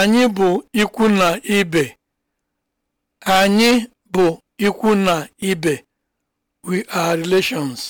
Anyị bụ ikwu na ibe. Anyị bụ ikwu We are relations.